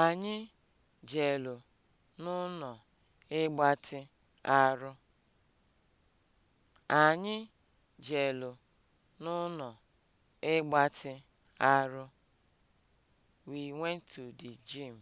Anyị jelu n'ụnọ ịgbatị arụ. Anyị jelu n'ụnọ ịgbatị arụ. We went to the gym.